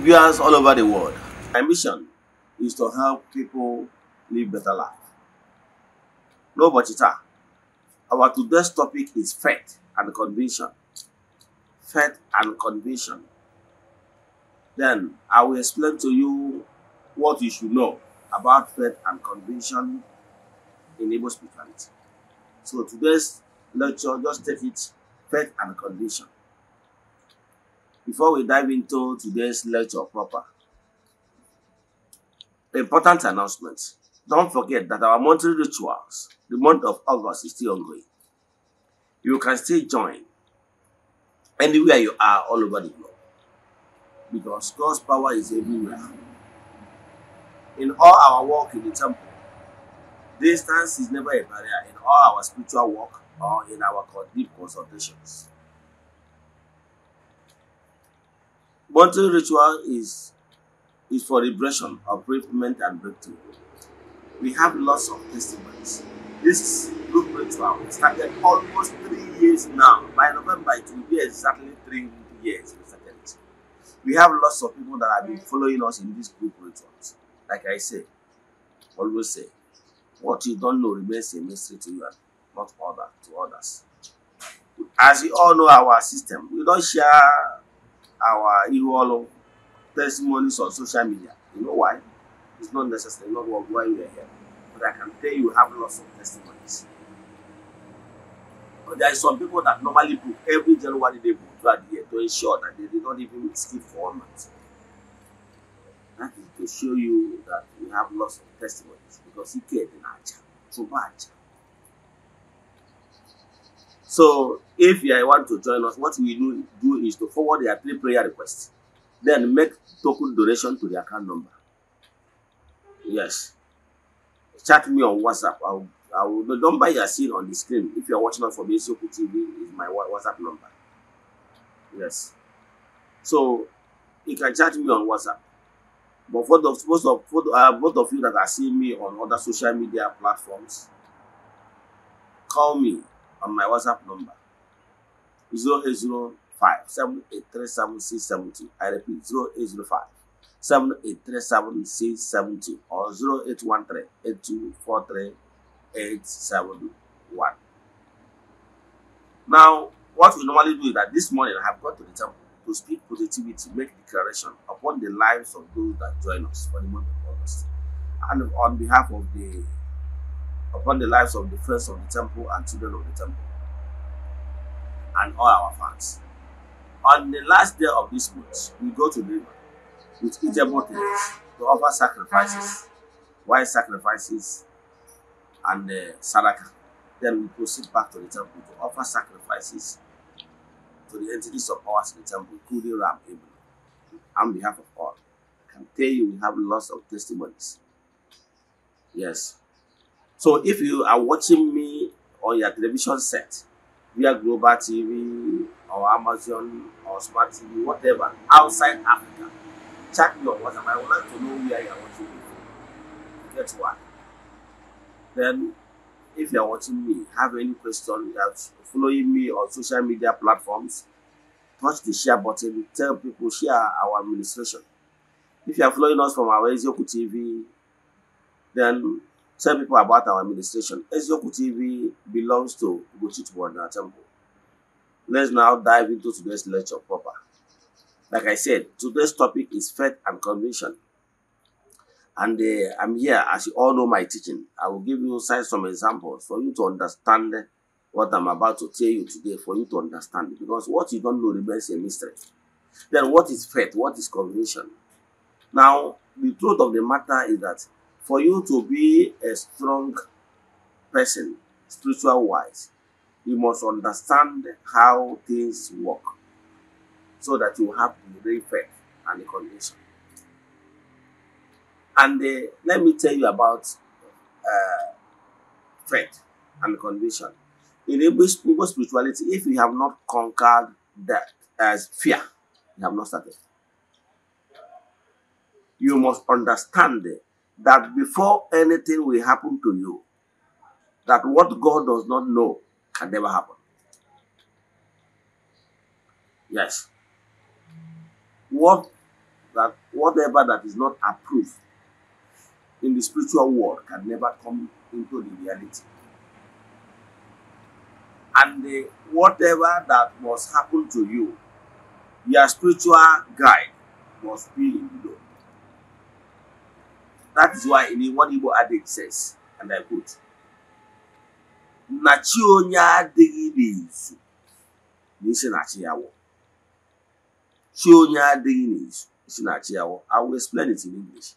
viewers all over the world. My mission is to help people live better life. No budgeter. Our today's topic is faith and conviction. Faith and conviction. Then I will explain to you what you should know about faith and conviction in Igbo spirituality. So today's lecture, just take it faith and conviction. before we dive into today's lecture proper, important announcement. Don't forget that our monthly rituals, the month of August, is still ongoing. You can still join anywhere you are all over the globe because God's power is everywhere. In all our work in the temple, distance is never a barrier in all our spiritual work or in our deep consultations. Bonding ritual is is for liberation of bereavement and breakthrough. We have lots of testimonies. This group ritual started almost three years now. By November, it will be exactly three years we started We have lots of people that have been following us in this group rituals. Like I say, always say, what you don't know remains a mystery to you and not other to others. As you all know our system, we don't share our you all testimonies on social media. You know why? It's not necessary, not what why we are here. But I can tell you we have lots of testimonies. But there are some people that normally book every January they book throughout the year to ensure that they did not even skip four months. That is to show you that we have lots of testimonies because he cared in our job. So bad job. So if you want to join us, what we do, do is to forward your three prayer requests. Then make token donation to the account number. Yes. Chat me on WhatsApp. I'll, I will, the number you are seeing on the screen, if you are watching us from Isioku TV, is my WhatsApp number. Yes. So you can chat me on WhatsApp. But for the, most of for the, uh, both of you that are seeing me on other social media platforms, call me on my WhatsApp number 0805 7837670. I repeat 0805 7837670 or 0813 8243 871. Now, what we normally do is that this morning I have gone to the temple to speak positivity, make declaration upon the lives of those that join us for the month of August. And on behalf of the upon the lives of the friends of the temple and children of the temple and all our fans. On the last day of this month, we go to the river with eatable to offer sacrifices, wild sacrifices, and uh, sadaka. Then we proceed back to the temple to offer sacrifices to the entities of ours in the temple, including Ram Abel, on behalf of all. I can tell you we have lots of testimonies. Yes, So if you are watching me on your television set, via Global TV or Amazon or Smart TV, whatever, outside Africa, check your WhatsApp. I would like to know where you are watching me from. That's why. Then, if you are watching me, have any question, you are following me on social media platforms, touch the share button, tell people, share our administration. If you are following us from our Ezioku TV, then Tell people about our administration. Ezeoku TV belongs to Ugochitwu Ordinary Temple. Let's now dive into today's lecture proper. Like I said, today's topic is faith and conviction. And uh, I'm here, as you all know my teaching. I will give you some examples for you to understand what I'm about to tell you today, for you to understand. Because what you don't know remains a mystery. Then what is faith? What is conviction? Now, the truth of the matter is that for you to be a strong person, spiritual wise, you must understand how things work so that you have the real faith and the condition. And uh, let me tell you about uh, faith and condition. In Igbo spirituality, if you have not conquered that as fear, you have not started. You must understand that before anything will happen to you, that what God does not know can never happen. Yes. What that whatever that is not approved in the spiritual world can never come into the reality. And the, whatever that must happen to you, your spiritual guide must be in the That is why in one Igbo adage says, and I quote, Nachi onye adịghị n'izu n'isi na-achị ya wụ. Chi onye adịghị n'izu isi na-achị ya I will explain it in English.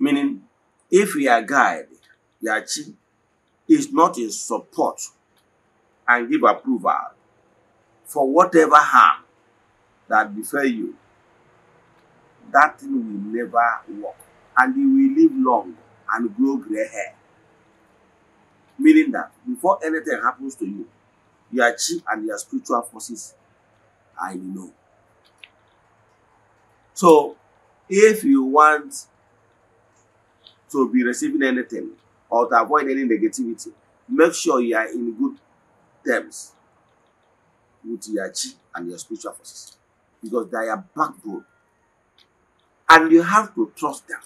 Meaning, if your guide, your chi, is not in support and give approval for whatever harm that befell you, that thing will never work and he will live long and grow gray hair. Meaning that before anything happens to you, your chi and your spiritual forces are in know. So, if you want to be receiving anything or to avoid any negativity, make sure you are in good terms with your chi and your spiritual forces because they are backbone and you have to trust them.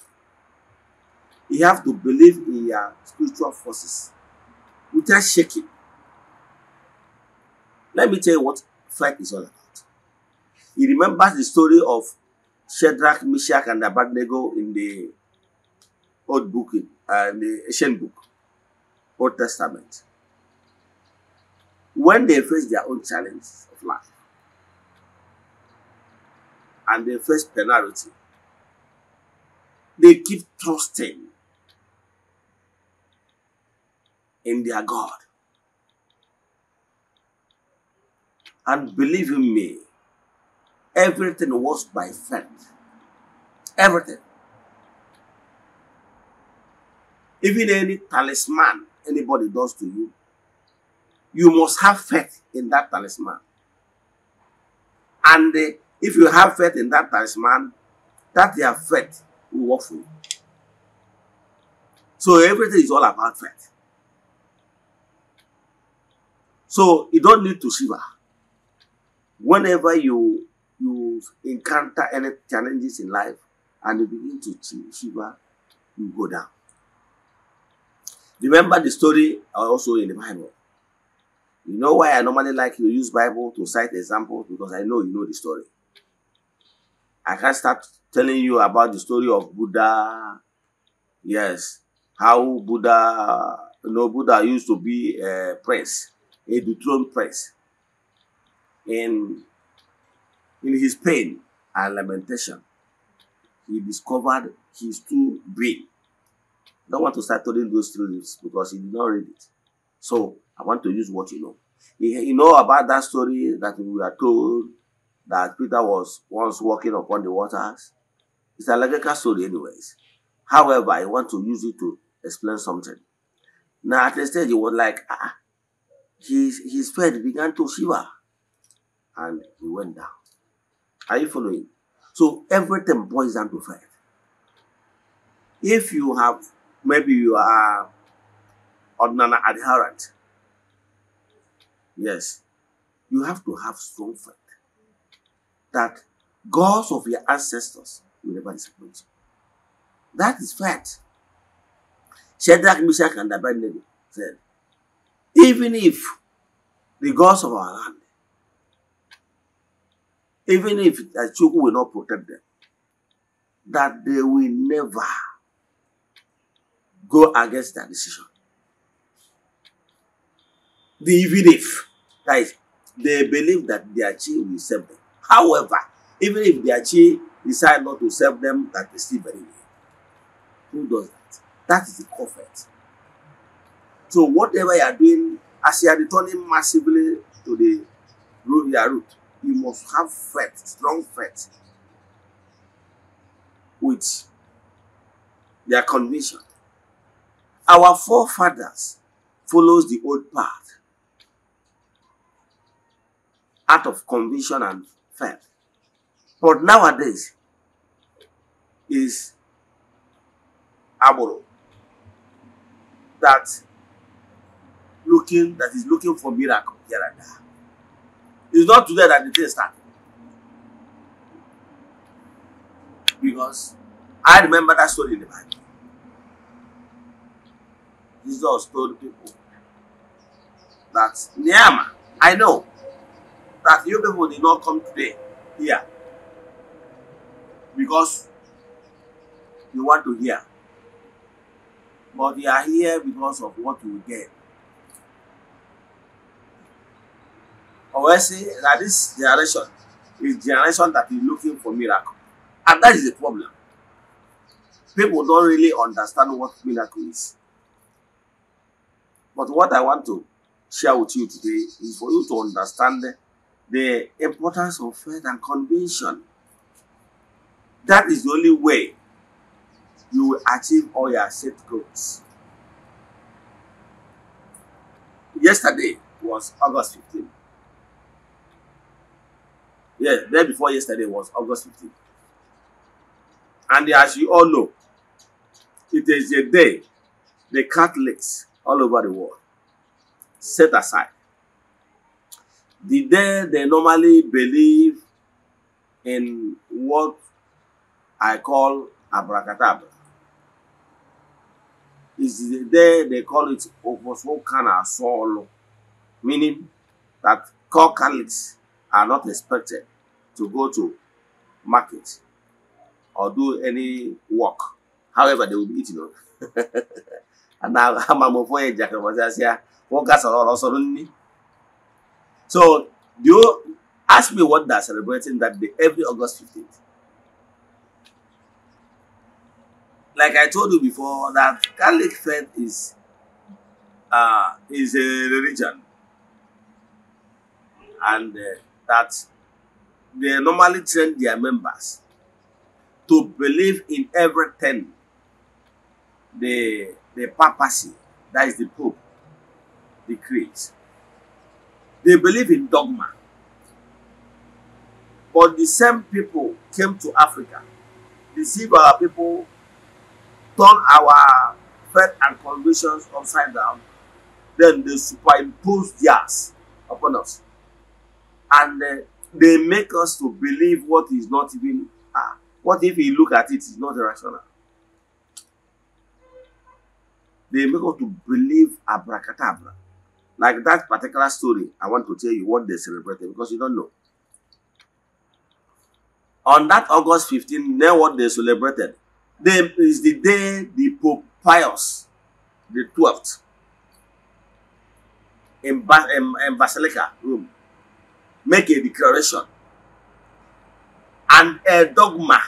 You have to believe in your spiritual forces without shaking. Let me tell you what flight is all about. He remembers the story of Shadrach, Meshach, and Abednego in the Old Book, uh, the Ancient Book, Old Testament. When they face their own challenge of life, and they face penalty, they keep trusting in their God. And believe in me, everything was by faith. Everything. Even any talisman anybody does to you, you must have faith in that talisman. And uh, if you have faith in that talisman, that their faith will work for you. So everything is all about faith. So you don't need to shiver. Whenever you you encounter any challenges in life and you begin to shiver, you go down. Remember the story uh, also in the Bible. You know why I normally like to use Bible to cite examples because I know you know the story. I can start telling you about the story of Buddha. Yes, how Buddha, you know, Buddha used to be a prince. a dethroned prince. And in his pain and lamentation, he discovered his true brain. I don't want to start telling those stories because he did not read it. So I want to use what you know. You know about that story that we are told that Peter was once walking upon the waters. It's a logical story, anyways. However, I want to use it to explain something. Now, at the stage, he was like, ah, his, his faith began to shiver and he went down. Are you following? So everything boils down to faith. If you have, maybe you are an adherent, yes, you have to have strong faith that gods of your ancestors will never disappoint you. That is faith. Shadrach, Meshach, and Abednego said, even if the gods of our land, even if the Chuku will not protect them, that they will never go against their decision. The even if, guys, they believe that their chi will save them. However, even if their chi decide not to save them, that they still believe real. Who does that? That is the prophet. So whatever you are doing, as you are returning massively to the road, your route, you must have faith, strong faith, with their conviction. Our forefathers follows the old path out of conviction and faith. But nowadays is aboro that looking that is looking for miracle here and there. It's not today that the thing started. Because I remember that story in the Bible. Jesus told people that Nehemiah, I know that you people did not come today here because you want to hear. But they are here because of what you get. or say that this generation is generation that is looking for miracle and that is the problem people don't really understand what miracle is but what i want to share with you today is for you to understand the importance of faith and conviction that is the only way you will achieve all your set goals yesterday was august 15th Yes, day before yesterday was August 15th. And as you all know, it is a day the Catholics all over the world set aside. The day they normally believe in what I call abracadabra. is the day they call it Oposokana Solo, meaning that core Catholics are not expected to go to market or do any work. However, they will be eating. and now I'm a boy, Jack, was as here. What gas are all suddenly? So, do you ask me what they're celebrating that day every August 15th? Like I told you before, that Catholic faith is uh, is a religion, and uh, that they normally train their members to believe in everything the the papacy that is the pope decrees they believe in dogma but the same people came to africa deceive our people turn our faith and convictions upside down then they superimpose theirs upon us and uh, they make us to believe what is not even ah what if we look at it is not rational they make us to believe abracadabra like that particular story i want to tell you what they celebrated because you don't know on that august 15 then what they celebrated then is the day the pope pius the 12th in, ba- in, in basilica rome make a declaration and a dogma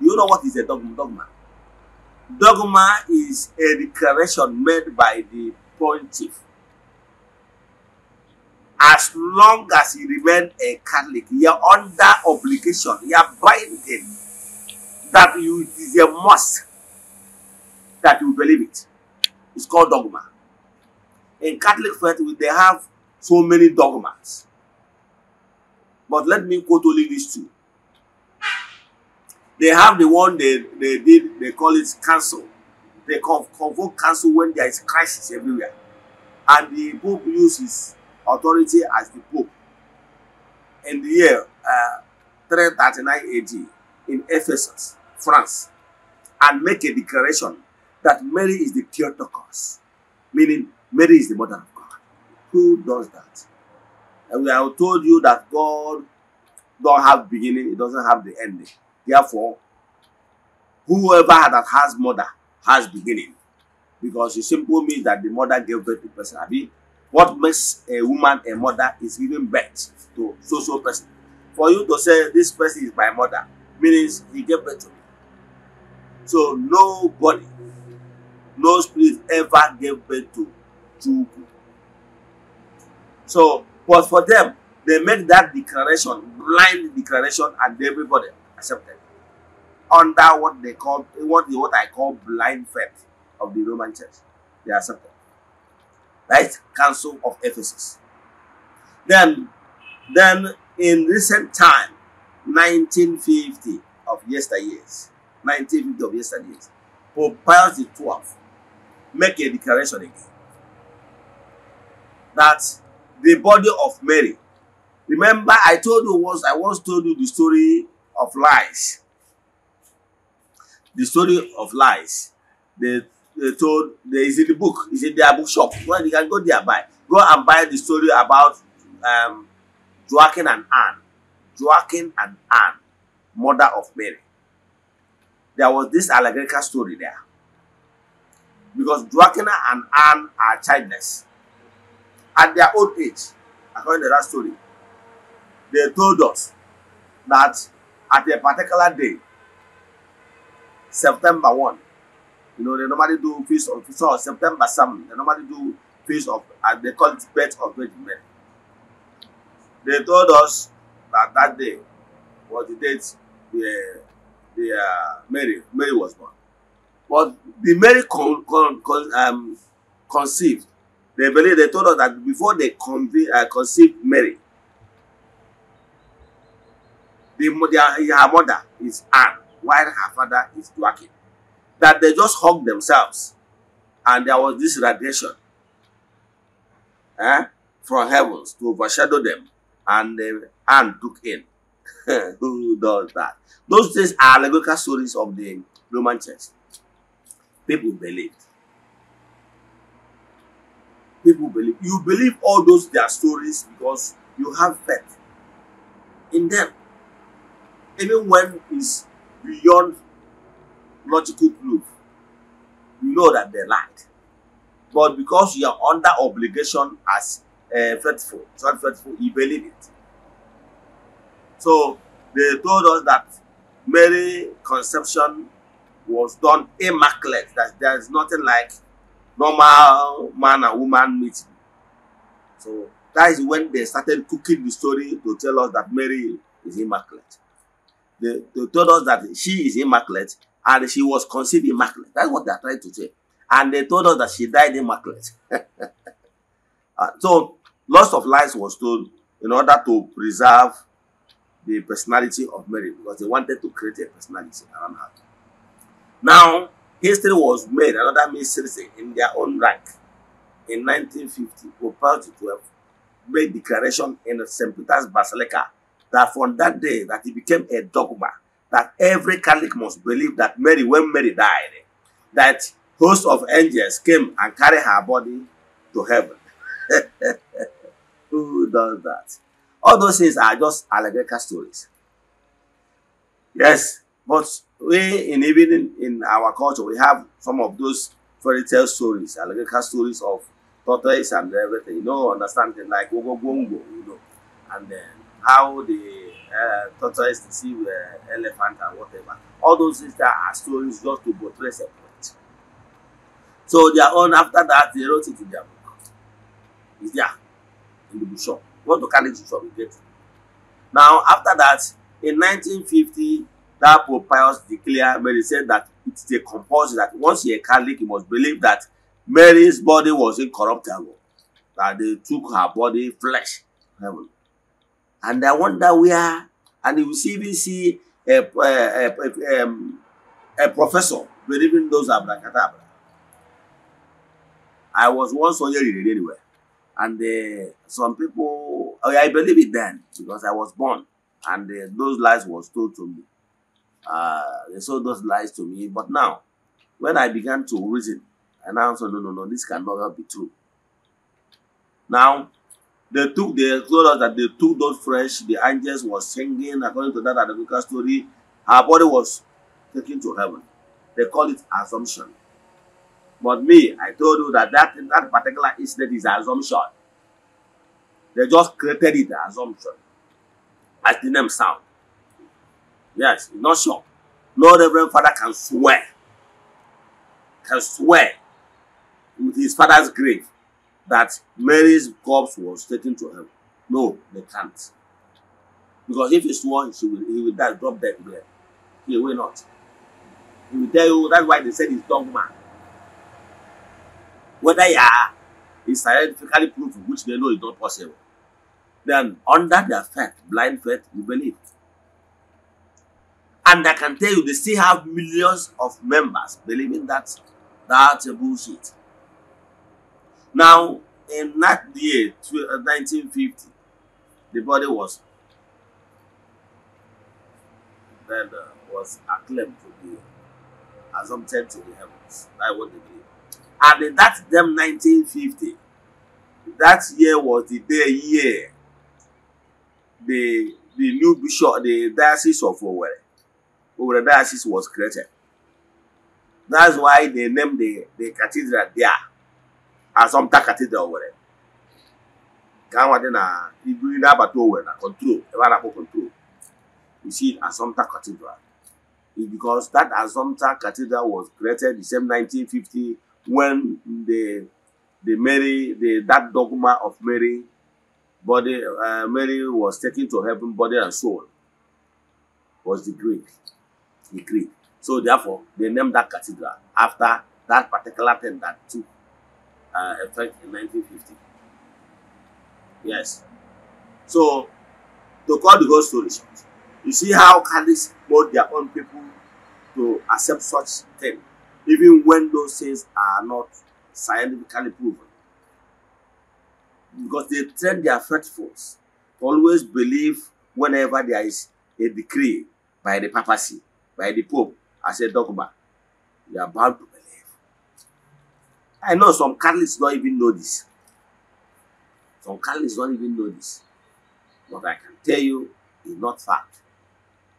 you know what is a dogma dogma dogma is a declaration made by the pontiff as long as he remain a Catholic, he are under obligation, He are binding that you it is a must that you believe it. It's called dogma. In Catholic faith, we they have so many dogmas. But let me quote only these two. They have the one they, they did, they call it council. They conv convoke council when there is crisis everywhere. And the Pope uses authority as the Pope. In the year uh, 339 AD in Ephesus, France, and make a declaration that Mary is the Theotokos, meaning Mary is the mother of God. Who does that? And we have told you that God don't have beginning, it doesn't have the ending. Therefore, whoever that has mother has beginning. Because it simply means that the mother gave birth to person. I mean, what makes a woman a mother is giving birth to so so person. For you to say this person is my mother means he gave birth to me. So nobody, no spirit ever gave birth to Chuku. So But for them, they make that declaration, blind declaration, and everybody accepted. Under what they call what, what I call blind faith of the Roman church. They accepted. Right? Council of Ephesus. Then, then in recent time, 1950 of yesteryears, 1950 of yesteryears, Pope Pius XII make a declaration again that the body of Mary. Remember, I told you once, I once told you the story of lies. The story of lies. They, they told, they, is in the book, Is in their bookshop. Well, you can go there buy. Go and buy the story about um, Joachim and Anne. Joachim and Anne, mother of Mary. There was this allegorical story there. Because Joachim and Anne are childless at their old age according to that story they told us that at a particular day september one you know they normally do feast of so september seven they normally do feast of and uh, they call it birth of virgin mary they told us that that day was the date the the uh, mary mary was born but the mary con con con um conceived They believe they told us that before they conceive uh, Mary, the, their, her mother is Anne, while her father is Joachim. That they just hugged themselves, and there was this radiation eh, from heavens to overshadow them, and uh, Anne took in. Who does that? Those things are allegorical stories of the Roman church. People believed. people believe. You believe all those their stories because you have faith in them. Even when it's beyond logical proof, you know that they lied. But because you are under obligation as uh, faithful, not faithful, you believe it. So they told us that Mary conception was done immaculate, that there is nothing like normal man and woman meeting. So that is when they started cooking the story to tell us that Mary is immaculate. They, they told us that she is immaculate and she was conceived immaculate. That's what they are trying to say. And they told us that she died immaculate. uh, so lots of lies was told in order to preserve the personality of Mary because they wanted to create a personality around her. Now, History was made another mystery in their own right. In 1950, Pope XII made declaration in St. Peter's Basilica that from that day that it became a dogma that every Catholic must believe that Mary, when Mary died, that host of angels came and carried her body to heaven. Who does that? All those things are just allegorical stories. Yes, But we in even in, our culture, we have some of those fairy tale stories, allegorical stories of tortoise and everything. You know, understanding like Ogobongo, you know, and then how the uh, tortoise see the elephant and whatever. All those things that are stories just to portray a point. So are on. after that they wrote it in their book. It's there in the bookshop. What to carry to shop we get. Now after that in 1950 that Pope Pius declared Mary said that it's a compulsion that once you're a Catholic, you must believe that Mary's body was incorruptible, that they took her body, flesh, heaven. And I wonder where, and you see, even see a, a, a, um, a professor believing those abracadabra. I was once on here anyway, and uh, some people, oh, I believe it then because I was born, and uh, those lies was told to me. Uh, they sold those lies to me. But now, when I began to reason, and I said, no, no, no, this cannot be true. Now, they took, they told us that they took those fresh, the angels was singing, according to that Adamuka story, her body was taken to heaven. They call it assumption. But me, I told you that that, that particular incident is assumption. They just created it, assumption, as the name sound. Yes, not sure. Lord, Reverend Father can swear, can swear with his father's grave that Mary's corpse was taken to him. No, they can't. Because if he one, she will, he will die, drop dead there. He will not. He will tell you, that's why they said he's man. Whether you are, is scientifically proven, which they know is not possible. Then, under the faith, blind faith, you believe. And I can tell you, they still have millions of members believing that that's a bullshit. Now, in that year, 1950, uh, the body was then uh, was acclaimed to be assumpted to the heavens. That's what they believe. And in that them 1950, that year was the day year the the new bishop, the diocese of Owerri over the diocese was created. That's why they named the, the cathedral there Assumpta Cathedral were. Ka nwa dị na ibu na-abata Owerri na control ebe a na-akpọ control. You see Assumpta Cathedral. It's because that Assumpta Cathedral was created the same 1950 when the the Mary the that dogma of Mary body uh, Mary was taken to heaven body and soul was the Greek the So therefore, they named that cathedral after that particular thing that took uh, effect in 1950. Yes. So, to call the whole story short, you see how Catholics brought their own people to accept such things, even when those things are not scientifically proven. Because they train their faithfuls to always believe whenever there is a decree by the papacy by the Pope as a dogma, you are bound to believe. I know some Catholics don't even know this. Some Catholics don't even know this. What I can tell you is not fact.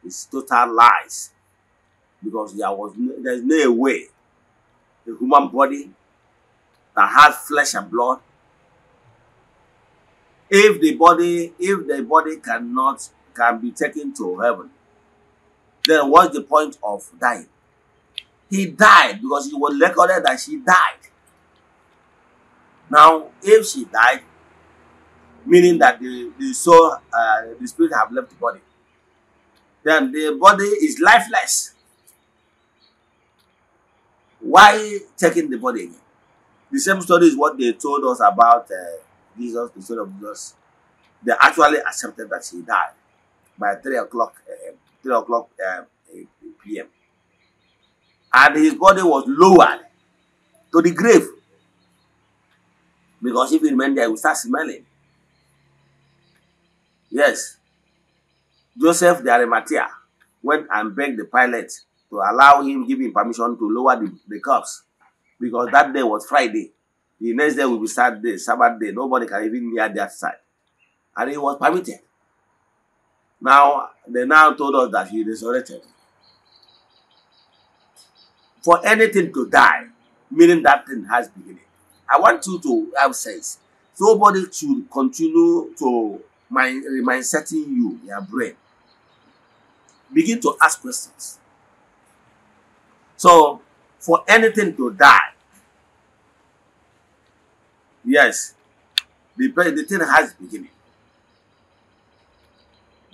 It's total lies. Because there was no, there's no way a human body that has flesh and blood if the body if the body cannot can be taken to heaven then what's the point of dying? He died because it was recorded that she died. Now, if she died, meaning that the, the soul, uh, the spirit have left the body, then the body is lifeless. Why taking the body again? The same story is what they told us about uh, Jesus, the Son of Jesus. They actually accepted that she died by 3 o'clock uh, Three o'clock um, p.m. And his body was lowered to the grave. Because if you remain there, you will start smelling. Yes. Joseph the Arimathea went and begged the pilot to allow him, give him permission to lower the, the cups. Because that day was Friday. The next day will be Saturday, Sabbath day. Nobody can even near that side. And he was permitted. Now, they now told us that he resurrected. For anything to die, meaning that thing has beginning. I want you to have sense. Nobody should continue to mind, mind setting you, your brain. Begin to ask questions. So, for anything to die, yes, the, the thing has beginning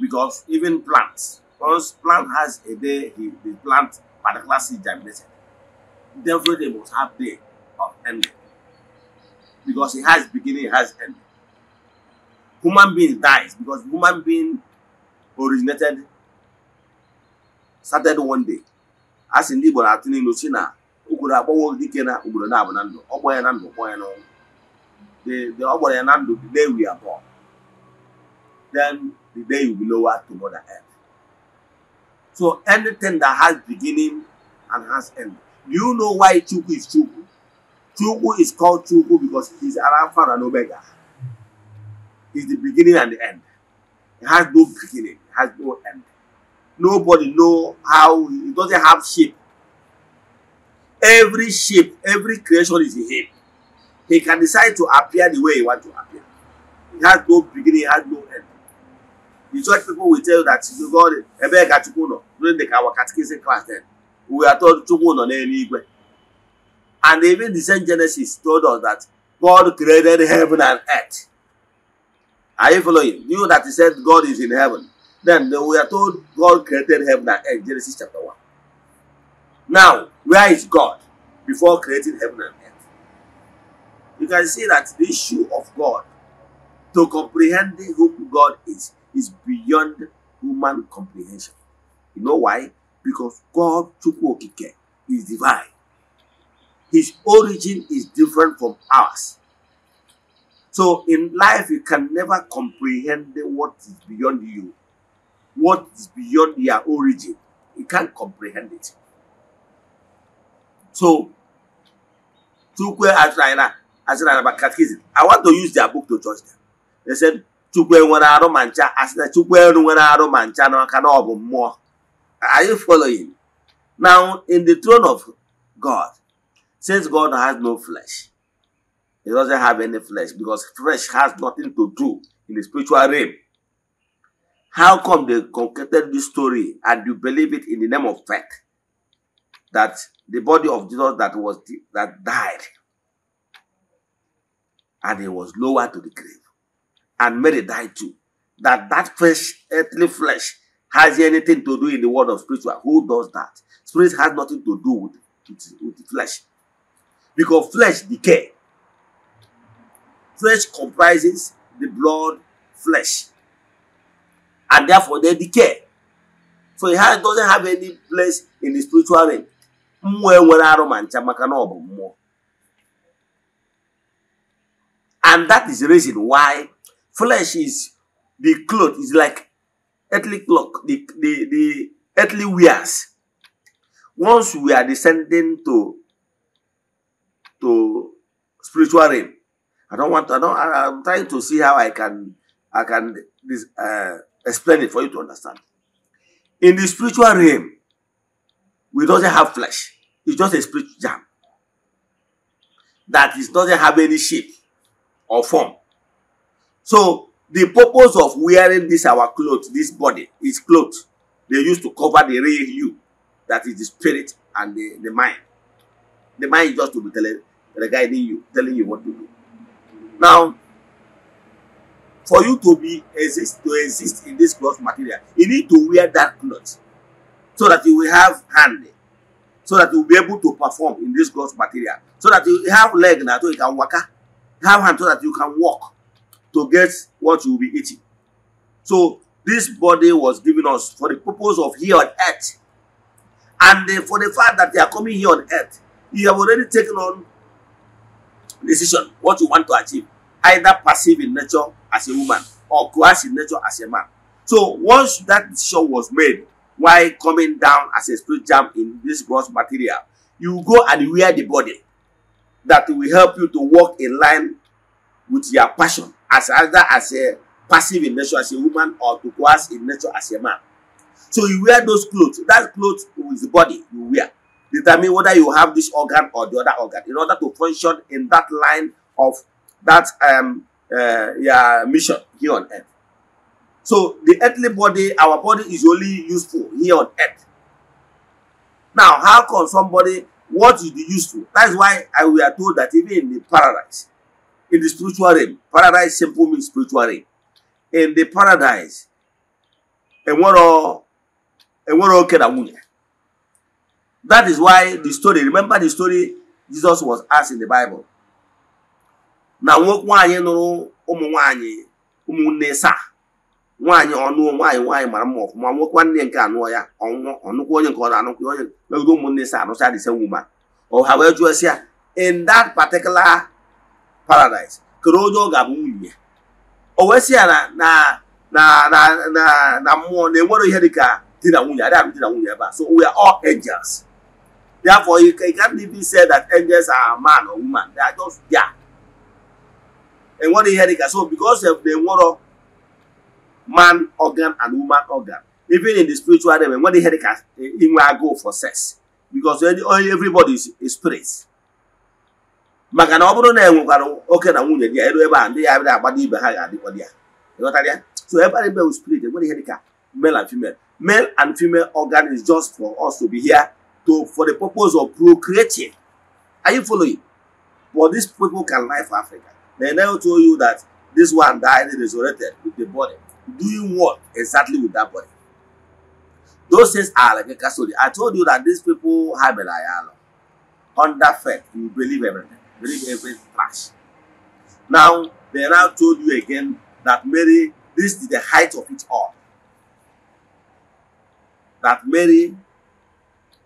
because even plants, once plant has a day, he, the plant particular seed germinated. Therefore, they must have day of ending. Because it has beginning, it has ending. Human being dies because human being originated, started one day. As in Igbo na-atụ n'ilu si na obodo agbanwe dike na obodo na-abụ na ndụ, ọ gbọọ ya na the day we are born. Then then you'll be lower to Mother Earth. So anything that has beginning and has end. Do you know why Chuku is Chuku? Chuku is called Chuku because he's Alpha and Omega. He's the beginning and the end. It has no beginning, it has no end. Nobody know how, He doesn't have shape. Every shape, every creation is in him. He can decide to appear the way he wants to appear. He has no beginning, it has no end. Church people will tell you that you God ebe ka Chukwu nọ during the our catechism class then. We are told Chukwu nọ n'eluigwe. And even the same Genesis told us that God created heaven and earth. Are you following? You know that he said God is in heaven. Then we are told God created heaven and earth, Genesis chapter one. Now, where is God before creating heaven and earth? You can see that the issue of God, to comprehend who God is, is beyond human comprehension. You know why? Because God Chukwu Okike is divine. His origin is different from ours. So in life, you can never comprehend what is beyond you, what is beyond your origin. You can't comprehend it. So, Chukwu Ashrayana, Ashrayana Catechism, I want to use their book to judge them. They said, chukwu enwere arụ ma ncha asị na chukwu eru nwere arụ ma ncha n'aka na ọ bụ mmụọ are you following now in the throne of god since god has no flesh he doesn't have any flesh because flesh has nothing to do in the spiritual realm how come they concocted this story and you believe it in the name of faith that the body of jesus that was that died and he was lowered to the grave and Mary died too. That that flesh, earthly flesh, has anything to do in the world of spiritual. Who does that? Spirit has nothing to do with, with, with the flesh. Because flesh decay. Flesh comprises the blood flesh. And therefore they decay. So it has, doesn't have any place in the spiritual realm. And that is the reason why Flesh is the cloth, is like earthly cloth, the, the, the earthly wears. Once we are descending to to spiritual realm, I don't want. To, I don't. I, am trying to see how I can I can this, uh, explain it for you to understand. In the spiritual realm, we doesn't have flesh. It's just a spirit jam that is doesn't have any shape or form. So the purpose of wearing this our clothes, this body, is clothes. They used to cover the real you, that is the spirit and the, the mind. The mind is just to be telling, guiding you, telling you what to do. Now, for you to be exist to exist in this cloth material, you need to wear that cloth so that you will have hand, so that you will be able to perform in this cloth material, so that you have leg now so you can walk, ah, have hand so that you can walk to get what you will be eating. So this body was given us for the purpose of here on earth. And uh, for the fact that they are coming here on earth, you have already taken on decision what you want to achieve, either passive in nature as a woman or coercive in nature as a man. So once that decision was made, why coming down as a spirit jam in this gross material, you go and wear the body that will help you to walk in line with your passion as either as a passive in nature as a woman or to as in nature as a man. So you wear those clothes. That clothes with the body you wear. Determine whether you have this organ or the other organ in order to function in that line of that um uh, yeah, mission here on earth. So the earthly body, our body is only useful here on earth. Now, how can somebody what is the useful? is why I we are told that even in the paradise, in the spiritual realm. Paradise simple means spiritual realm. In the paradise, and what all oke na nwunye. That is why the story, remember the story Jesus was asked in the Bible. Na nwoke nwaanyị nụrụ ụmụ nwaanyị ụmụnne saa nwaanyị ọnụọ nwaanyị nwaanyị mara mma ọfụma nwoke nwanne nke anụọ ya ọnwụọ ọnụkwu onye nke ọ na-anụkwu onye megide ụmụnne sa, anụcha dị se nwuma ọ ha wee jụọ sị ya in that particular paradise kere onye ọ ga-abụ nwunye o wee sị ya na na na na na na mmụọ na enwere ihe dịka di na nwunye adịghị di na nwunye ebe a so we are all angels therefore you can't even say that angels are man or woman they are just there enwere ihe dịka so because of the enwere man organ and woman organ even in the spiritual realm enwere ihe dịka e, inwe agụụ for sex because everybody is, is spirit maka na ọ bụrụ na e nwekwara oke na nwunye dị ya eru ebe a ndị ya bịa agbado ibe ha ga-adịkwa dị ya ịghọtara ya so ebe a bụ spirit enwere ihe dịka male and female male and female organ is just for us to be here to for the purpose of procreating are you following but these people can life Africa they never told you that this one died and resurrected with the body doing what exactly with that body those things are like a custody i told you that these people have a lie under faith you believe everything bring every trash. Now, they now told you again that Mary, this is the height of it all. That Mary,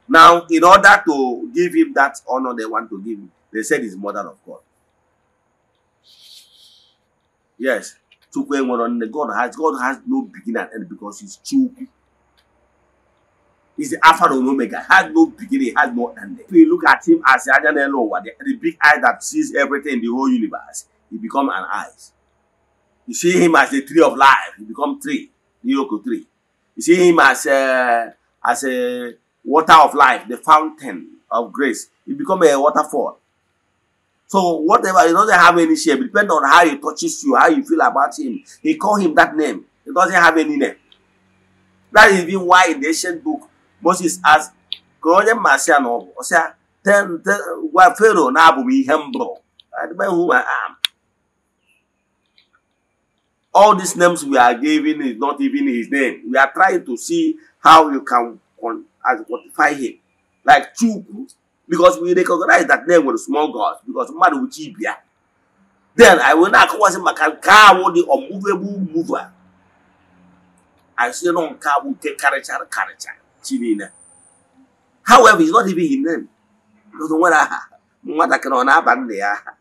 now in order to give him that honor they want to give him, they said he's mother of God. Yes, Chukwu God has God has no beginning and end because he's too. Is the Alpha and Omega. Has no beginning, has no ending. If we look at him as the Ajan Elowa, the, the big eye that sees everything in the whole universe, he becomes an eyes. You see him as the tree of life, he become tree, Yoko tree. You see him as a, uh, as a water of life, the fountain of grace. He becomes a waterfall. So whatever, he doesn't have any shape. Depend on how he touches you, how you feel about him. He call him that name. He doesn't have any name. That is even why in the ancient book, Moses asked ka onye or ya then ọ bụ ọ sị ya I don't know who I am all these names we are giving is not even his name. We are trying to see how you can quantify him. Like Chukwu, because we recognize that name with small gods, because Madu Chibia. Then I will not call him Makankawo, the unmovable mover. I say, no, will take character, character. chi niile however it's not even his name godo nwere aha nwatakịrị ọ na-aba nna ya aha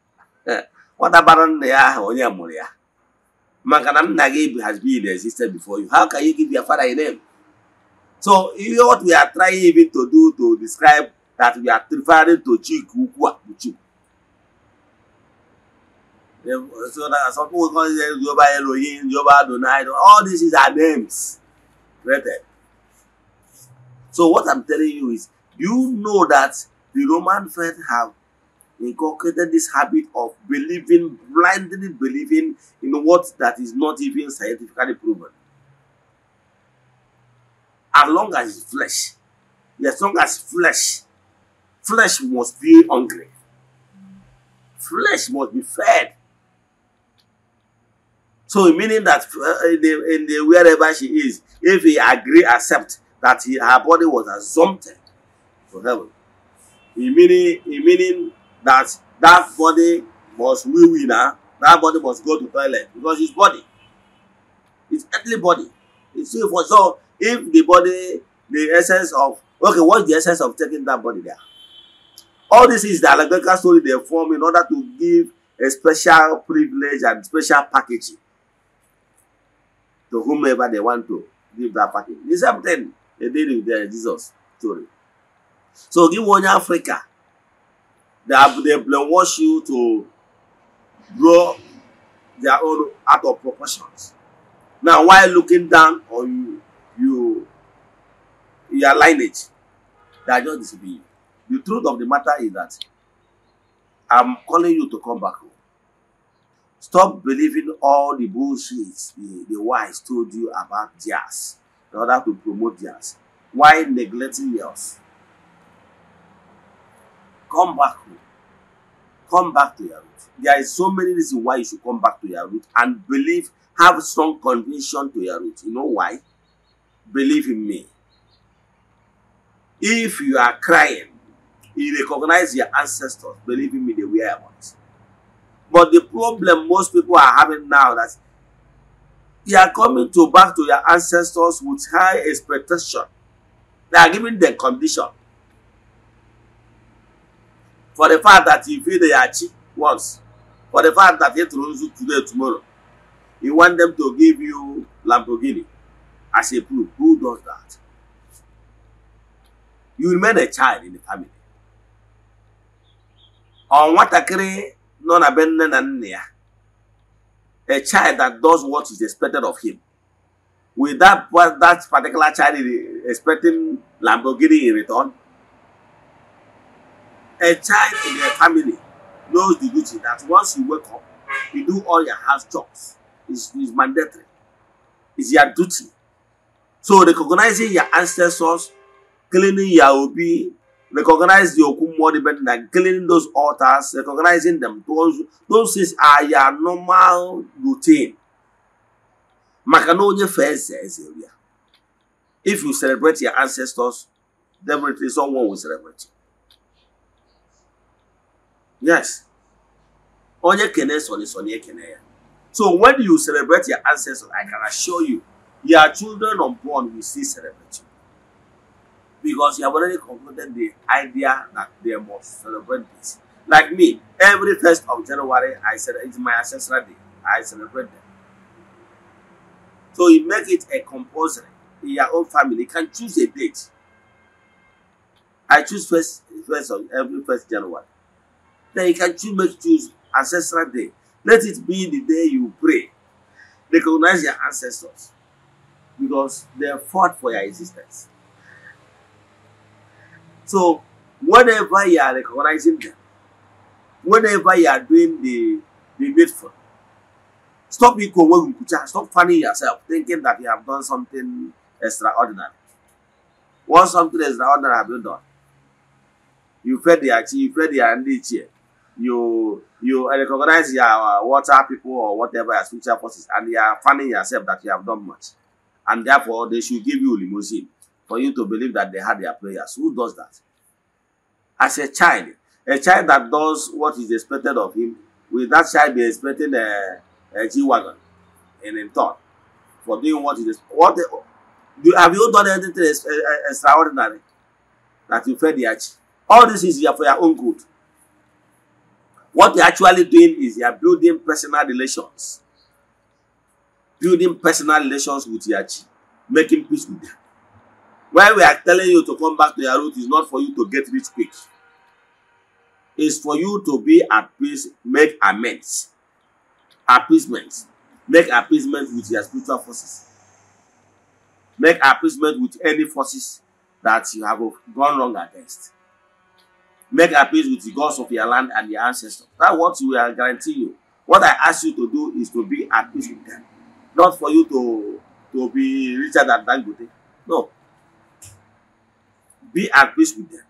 nwata bara nna ya aha onye mụrụ ya maka na nna gị has been existed before you how can you give your father a name so ihe what we are trying even to do to describe that we are referring to chik ukwu a bụ Chukwu so that some people call it Yoruba Elohim Yoruba Adonai all this is our names created So what I'm telling you is, you know that the Roman faith have inculcated this habit of believing, blindly believing in what that is not even scientifically proven. As long as flesh, as long as flesh, flesh must be hungry. Flesh must be fed. So meaning that uh, in the, in the wherever she is, if he agree, accept, that he, her body was assumed to heaven. In meaning, in meaning that that body must wee wee now, that body must go to toilet because his body, his earthly body, it's for so if the body, the essence of okay, what's the essence of taking that body there? All this is the allegorical story they form in order to give a special privilege and special packaging to whomever they want to give that package. The same edere there Jizọs toro so gị nwe onye Afrịka they brainwash you to blow their own out of proportions now while looking down on you you your lineage they are just disobeying you the truth of the matter is that I'm calling you to come back home. Stop believing all the bullshit the, the wise told you about theirs in order to promote theirs while neglecting yours. Come back home. Come back to your root. There is so many reasons why you should come back to your root and believe, have strong conviction to your root. You know why? Believe in me. If you are crying, you recognize your ancestors. Believe in me, they were ones. But the problem most people are having now that you are coming to back to your ancestors with high expectation. They are giving them condition. For the fact that you feel they achieve once. For the fact that you throws do today tomorrow. You want them to give you Lamborghini as a proof. Who does that? You remain a child in the family. Ọ nwatakịrị nọ na be nne na nna ya a child that does what is expected of him. Will that, that particular child expecting Lamborghini in return? A child in a family knows the duty that once you wake up, you do all your house jobs. It's, it's mandatory. It's your duty. So recognizing your ancestors, cleaning your obi, recognize the okum anybody better than cleaning those altars, recognizing them. Those, those things are your normal routine. Makanoje first area. If you celebrate your ancestors, definitely someone will celebrate you. Yes. Onye kene soni soni kene So when you celebrate your ancestors, I can assure you, your children unborn will still celebrate you because you have already concluded the idea that they must celebrate this. Like me, every first of January, I said it's my ancestral day. I celebrate them. So you make it a compulsory in your own family. You can choose a date. I choose first, first of every first January. Then you can choose, make choose ancestral day. Let it be the day you pray. Recognize your ancestors because they fought for your existence. So whenever you are recognizing them, whenever you are doing the, the needful, stop stop fanning yourself, thinking that you have done something extraordinary. Once something extraordinary have been done, you fed the you fed the NDC, you you recognize your uh, water people or whatever your spiritual forces, and you are finding yourself that you have done much. And therefore, they should give you limousine for you to believe that they had their prayers. Who does that? As a child, a child that does what is expected of him, will that child be expecting a, a G-Wagon and in turn for doing what is what do, have you done anything e, e, extraordinary that you fed the arch? All this is for your own good. What you're actually doing is you're building personal relations. Building personal relations with your chi, making peace with them why we are telling you to come back to your root is not for you to get rich quick it's for you to be at peace make amends appeasement make appeasement with your spiritual forces make appeasement with any forces that you have gone wrong against make appeasement with the gods of your land and your ancestors that's what we are guarantee you what i ask you to do is to be at peace with them not for you to to be richer than dangote no be at peace with them.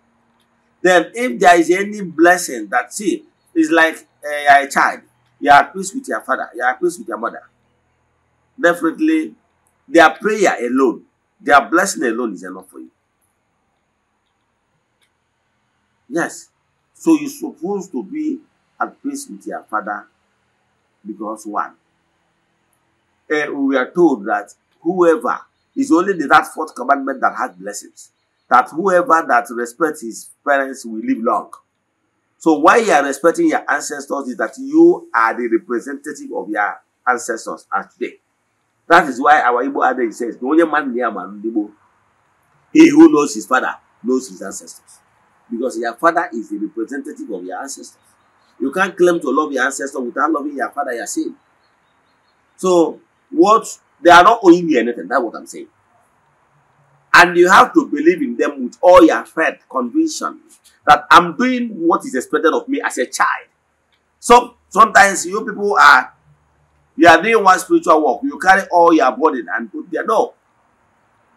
Then, if there is any blessing that see, it's like uh, a child, you are at peace with your father, you are at peace with your mother. Definitely, their prayer alone, their blessing alone is enough for you. Yes. So you're supposed to be at peace with your father because one, uh, we are told that whoever is only the that fourth commandment that has blessings that whoever that respects his parents will live long. So why you are respecting your ancestors is that you are the representative of your ancestors as today. That is why our Igbo adage says, the only man near man Igbo, he who knows his father knows his ancestors. Because your father is the representative of your ancestors. You can't claim to love your ancestor without loving your father, your sin. So what they are not owing you anything, that's what I'm saying. And you have to believe in them with all your faith, conviction that I'm doing what is expected of me as a child. So sometimes you people are you are doing one spiritual work, you carry all your burden and put there. No.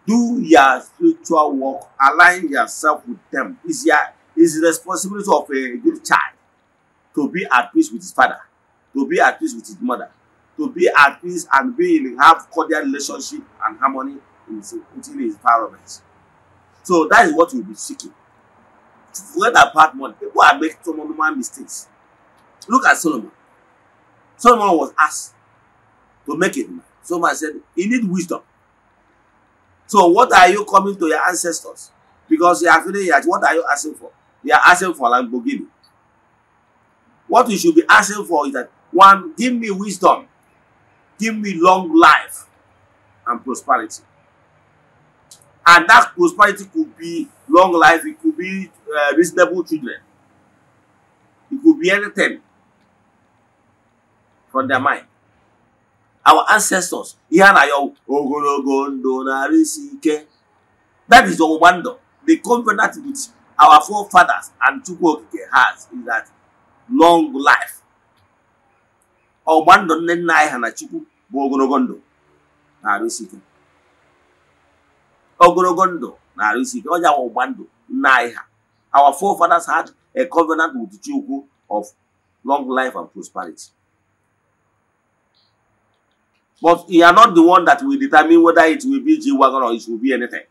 Do your spiritual work, align yourself with them. It's your it's the responsibility of a good child to be at peace with his father, to be at peace with his mother, to be at peace and be in have cordial relationship and harmony in his, within his environment. So that is what you'll be seeking. To forget about money. People are making some normal mistakes. Look at Solomon. Solomon was asked to make it. Solomon said, he need wisdom. So what are you coming to your ancestors? Because you are feeling like, what are you asking for? You are asking for Lamborghini. What you should be asking for is that, one, give me wisdom. Give me long life and prosperity. And that prosperity could be long life, it could be uh, reasonable children, it could be anything from their mind. Our ancestors, ihe ogologo ndụ That is our wonder. The covenant which our forefathers and Chukwu has is that long life. Ọgba ndụ nne nna anyị na Chukwu bụ ogologo ndụ narị isi ogologo ndụ na-arụ isi ike ọja ọgba ndụ nna anyị ha our forefathers had a covenant with Chukwu of long life and prosperity. But you are not the one that will determine whether it will be g or it will be anything.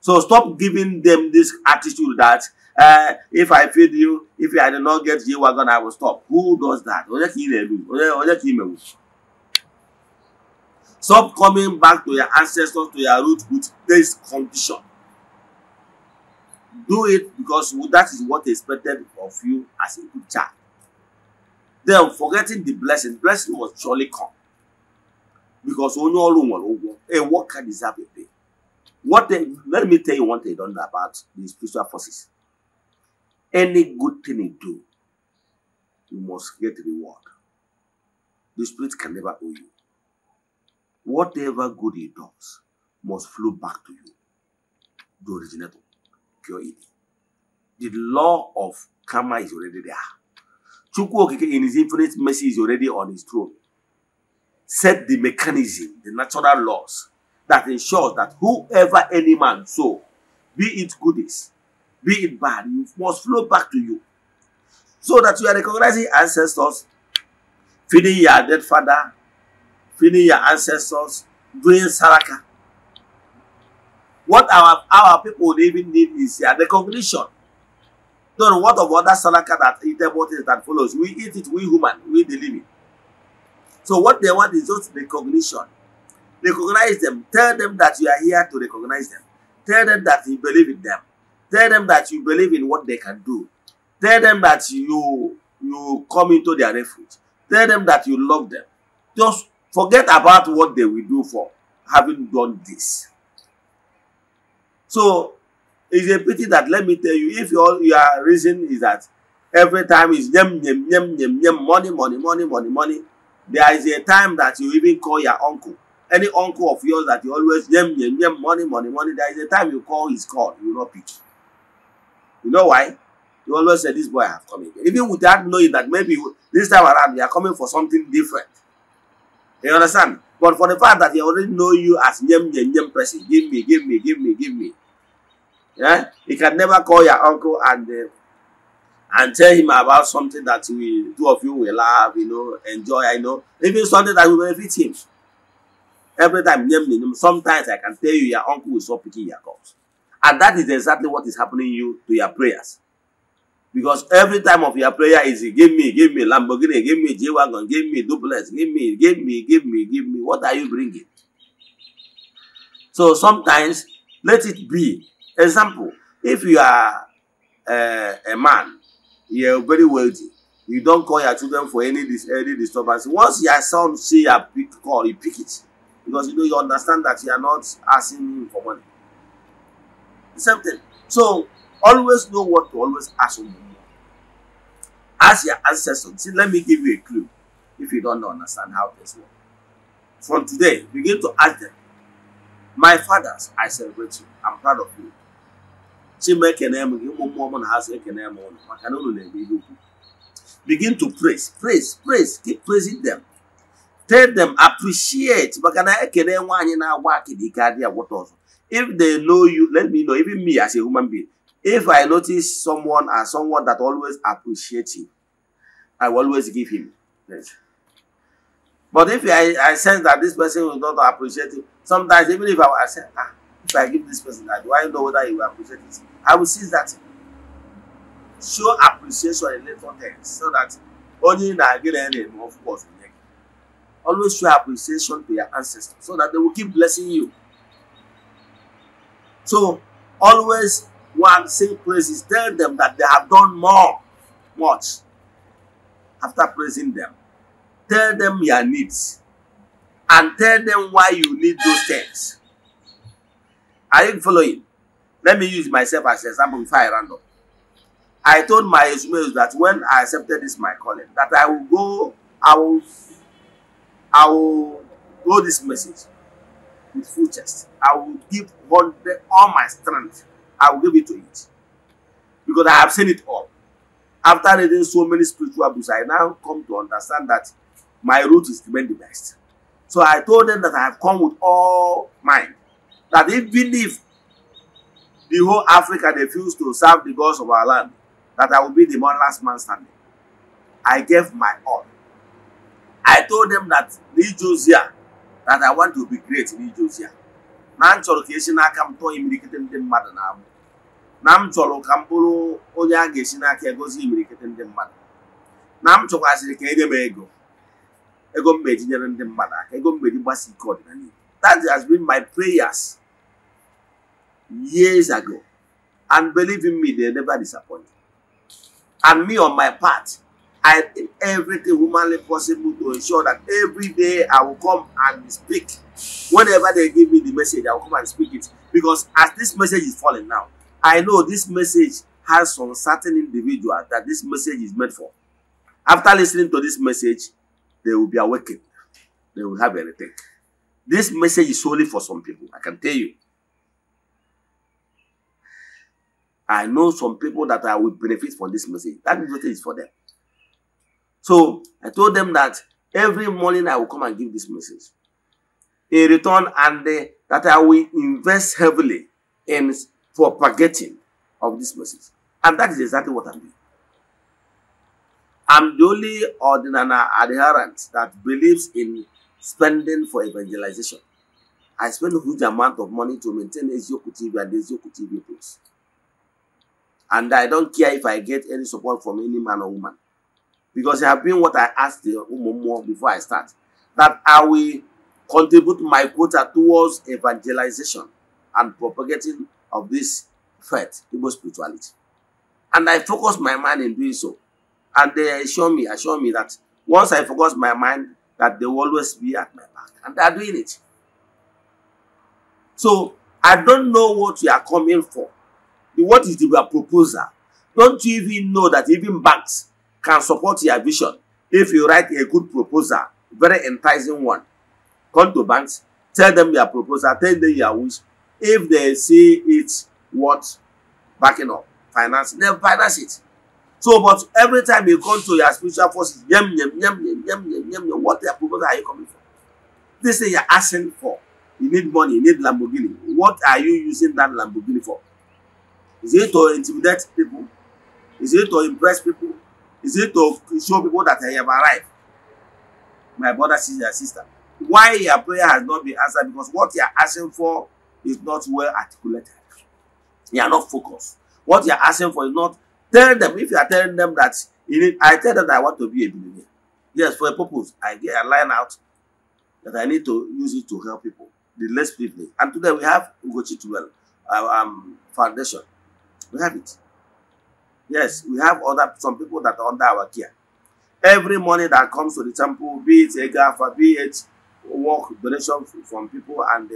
So stop giving them this attitude that uh, if I feed you, if I do not get g I will stop. Who does that? Stop coming back to your ancestors, to your roots with this condition. Do it because that is what is expected of you as a good child. Then forgetting the blessing, blessing will surely come. Because only all woman, what can deserve a pay. What they, let me tell you one thing don't know about the spiritual forces. Any good thing you do, you must get reward. The spirit can never owe you whatever good he does must flow back to you, the originator, pure id. The law of karma is already there. Chukwu in his infinite mercy is already on his throne. Set the mechanism, the natural laws that ensures that whoever any man sow, be it goodies, be it bad, you must flow back to you. So that you are recognizing ancestors, feeding your dead father, feeding your ancestors, doing saraka. What our, our people would even need is yeah, the cognition. Don't what of other saraka that eatable is that follows. We eat it, we human, we the living. So what they want is just recognition. Recognize them. Tell them that you are here to recognize them. Tell them that you believe in them. Tell them that you believe in what they can do. Tell them that you you come into their refuge. Tell them that you love them. Just Forget about what they will do for having done this. So it's a pity that let me tell you, if your your reason is that every time is yem yem yem yem yem money money money money money, there is a time that you even call your uncle. Any uncle of yours that you always yem yem yem money money money, there is a time you call his call, you will not pick. You know why? You always say this boy have come again. Even without knowing that maybe this time around you are coming for something different. You understand? But for the fact that he already know you as Nyem Nyem person, give me, give me, give me, give me. Yeah? he can never call your uncle and uh, and tell him about something that we two of you will love, you know, enjoy, I know, even something that will benefit him. Every time, sometimes I can tell you your uncle will stop picking your calls. And that is exactly what is happening you to your prayers. Because every time of your prayer is give me, give me Lamborghini, give me J-Wagon, give me duplex, give me, give me, give me, give me. What are you bringing? So sometimes, let it be. Example, if you are uh, a man, you are very wealthy, you don't call your children for any dis any disturbance. Once your son see your big call, he pick it. Because you know you understand that you are not asking for money. The same thing. So always know what to always ask when you need. Ask your ancestors. See, let me give you a clue if you don't understand how this works. From today, begin to ask them, My fathers, I celebrate you. I'm proud of you. Begin to praise, praise, praise, keep praising them. Tell them appreciate If they know you, let me know, even me as a human being. If I notice someone as someone that always appreciates him, I will always give him praise. But if I, I sense that this person will not appreciate it, sometimes even if I, I say, ah, if I give this person that, do I know whether he will appreciate it? I will see that. Show appreciation in little things so that only in Nigeria, of course, always show appreciation to your ancestors so that they will keep blessing you. So always one sing praises. Tell them that they have done more. Much. After praising them, tell them your needs and tell them why you need those things. Are you following? Let me use myself as an example before I round up. I told my Ismail that when I accepted this my calling, that I will go, I will, I will go this message with full chest. I will give all, all my strength I will give it to it. Because I have seen it all. After reading so many spiritual books, I now come to understand that my route is even the best. So I told them that I have come with all mine. That even if the whole Africa refused to serve the gods of our land, that I will be the one last man standing. I gave my all. I told them that in Josiah, that I want to be great in Josiah na m chọrọ ka esi n'aka m tụọ imirikiti ndị mmadụ na agbụ na m chọrọ ka m bụrụ onye a ga-esi n'aka egozi imirikiti ndị mmadụ na m chọkwazịrị ka enye m ego ego m meji nyere ndị mmadụ aka ego m meji gbasa ike ọdịnala that has been my prayers years ago and believe in me they never disappoint and me on my part I did everything humanly possible to ensure that every day I will come and speak whenever they give me the message, I will come and speak it. Because as this message is falling now, I know this message has some certain individual that this message is meant for. After listening to this message, they will be awakened. They will have anything. This message is solely for some people, I can tell you. I know some people that I will benefit from this message. That message is for them. So I told them that every morning I will come and give this message a return and uh, that I will invest heavily in propagating of this message. And that is exactly what I'm doing. I'm the only ordinary adherent that believes in spending for evangelization. I spend a huge amount of money to maintain Ezioku TV and Ezioku TV Plus. And I don't care if I get any support from any man or woman. Because I have been what I asked the Umumu before I start. That I will contribute my quota towards evangelization and propagating of this faith, Igbo spirituality. And I focus my mind in doing so. And they assure me, assure me that once I focus my mind, that they will always be at my back. And they are doing it. So I don't know what you are coming for. What is your proposal? Don't you even know that even banks can support your vision if you write a good proposal, very enticing one, Come to banks, tell them your proposal, tell them your wish. If they see it's worth backing up, finance, then finance it. So, but every time you come to your spiritual forces, yum, yum, yum, yum, yum, yum, yum, yum, what their proposal are you coming for? This thing you're asking for. You need money, you need Lamborghini. What are you using that Lamborghini for? Is it to intimidate people? Is it to impress people? Is it to show people that I have arrived? My brother, sister, sister why your prayer has not been answered because what you are asking for is not well articulated. You are not focused. What you are asking for is not telling them. If you are telling them that you need, I tell them that I want to be a billionaire. Yes, for a purpose. I get a line out that I need to use it to help people, the less privileged. And today we have Ugochi Tuwel um, Foundation. We have it. Yes, we have other some people that are under our care. Every money that comes to the temple, be it a Egafa, be it work donation from people and uh,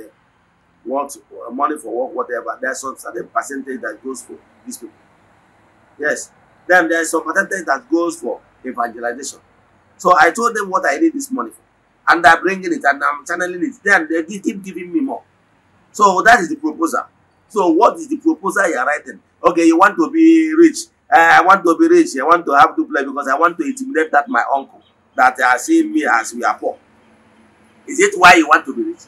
want money for work, whatever. There's some certain percentage that goes for these people. Yes. Then there's some percentage that goes for evangelization. So I told them what I need this money for. And I'm bringing it and I'm channeling it. Then they keep giving me more. So that is the proposal. So what is the proposal you're writing? Okay, you want to be rich. Uh, I want to be rich. I want to have to play because I want to intimidate that my uncle that uh, see me as we are poor. Is it why you want to be rich?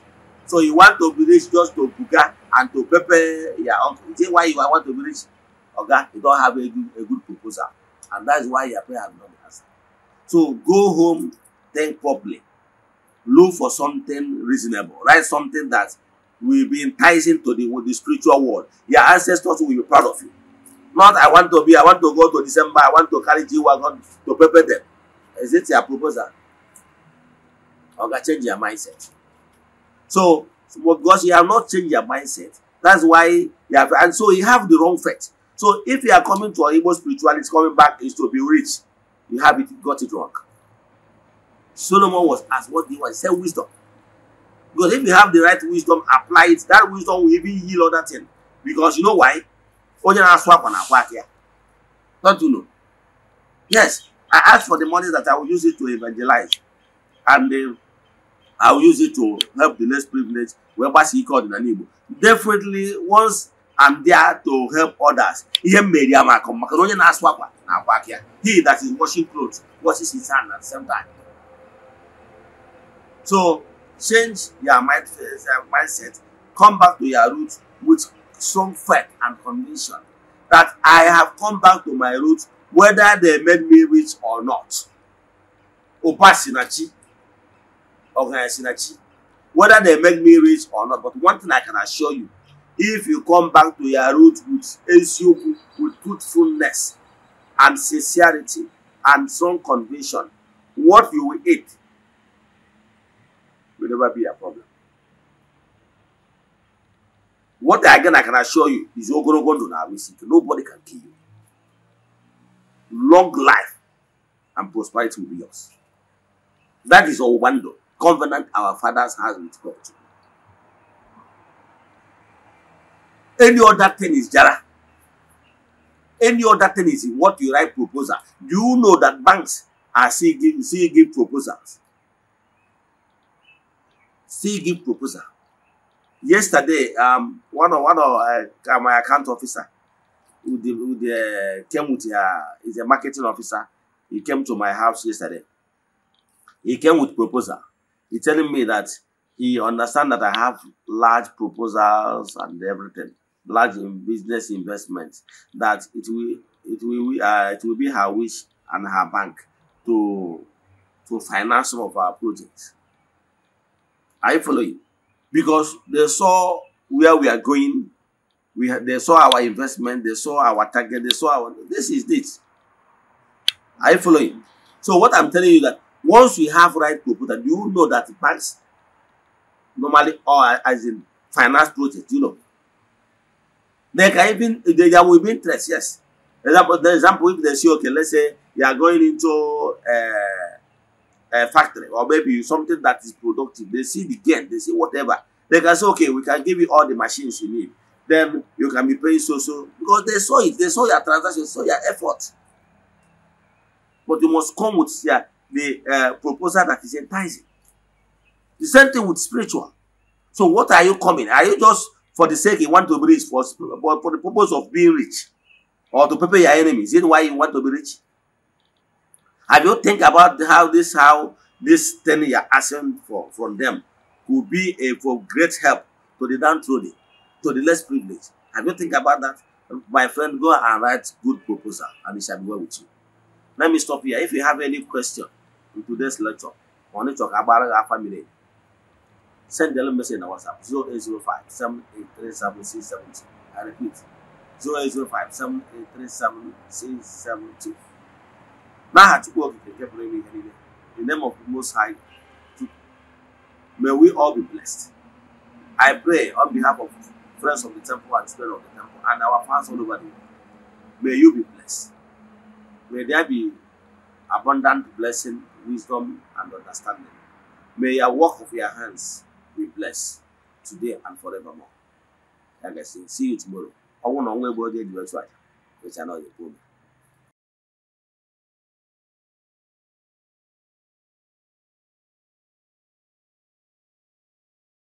So you want to be rich just to buga and to pepper your uncle. Is it why you want to be rich? Oga, you don't have a good, a good proposal. And that is why your parents has not been answered. So go home, think properly. Look for something reasonable. Write something that will be enticing to the, the spiritual world. Your ancestors will be proud of you. Not I want to be, I want to go to December, I want to carry G-Wagon to prepare them. Is it your proposal? or can change their mindset. So, because you have not changed your mindset, that's why you have, and so you have the wrong faith. So, if you are coming to an Igbo spirituality, coming back is to be rich, you have it, got it wrong. Solomon was asked what he was, he said wisdom. Because if you have the right wisdom, apply it, that wisdom will even heal other things. Because you know why? Onye na-asụ akwa na Don't you know? Yes, I asked for the money that I will use it to evangelize. And the um, I will use it to help the less privileged, whereby she called in Igbo. Definitely, once I'm there to help others, he He that is washing clothes washes his hand at the same time. So, change your uh, mindset, come back to your roots with strong faith and conviction that I have come back to my roots whether they made me rich or not. Opa sinachi organizing achi whether they make me rich or not but one thing i can assure you if you come back to your root with eziokwu with truthfulness and sincerity and strong conviction what you will eat will never be a problem what again i can assure you is ogologo ndụ na arisik nobody can kill you long life and prosperity will be yours that is owuwa ndụ covenant our fathers has with God. Any other thing is Jara. Any other thing is what you write proposal. Do you know that banks are still giving, still giving proposals? Still give proposal. Yesterday, um, one of, one of uh, my account officer who, the, who the, uh, came with uh, is a marketing officer. He came to my house yesterday. He came with proposal. He's telling me that he understands that I have large proposals and everything, large business investments, that it will, it will, uh, it will be her wish and her bank to, to finance some of our projects. Are you following? Because they saw where we are going. We they saw our investment. They saw our target. They saw our. This is it. Are you following? So what I'm telling you that Once we have right proposal, you know that the banks normally or as in finance project, you know. They can even there will be interest, yes. Example, the example if they say, okay, let's say you are going into uh, eh, a eh, factory or maybe something that is productive, they see the gain, they see whatever. They can say, okay, we can give you all the machines you need. Then you can be paying so so because they saw it, they saw your transaction, saw your effort. But you must come with your the uh, proposal that is enticing. The same thing with spiritual. So what are you coming? Are you just for the sake you want to be rich, for, for the purpose of being rich? Or to prepare your enemies? Is it why you want to be rich? Have you think about how this how this thing you're asking for from them could be a for great help to the downtrodden, to the less privileged? Have you think about that? My friend, go and write good proposal and it shall be well with you. Let me stop here. If you have any question, in today's lecture. We want to talk about our family. Send the message on WhatsApp 0805 7837670. I repeat 0805 7837670. Now, to work with the people in the name of the Most High, may we all be blessed. I pray on behalf of friends of the temple and spirit of the temple and our fans all over the world. May you be blessed. May there be abundant blessing wisdom, and understanding. May your work of your hands be blessed today and forevermore. Like I say, see you tomorrow. I want to know where you do it try. which I know you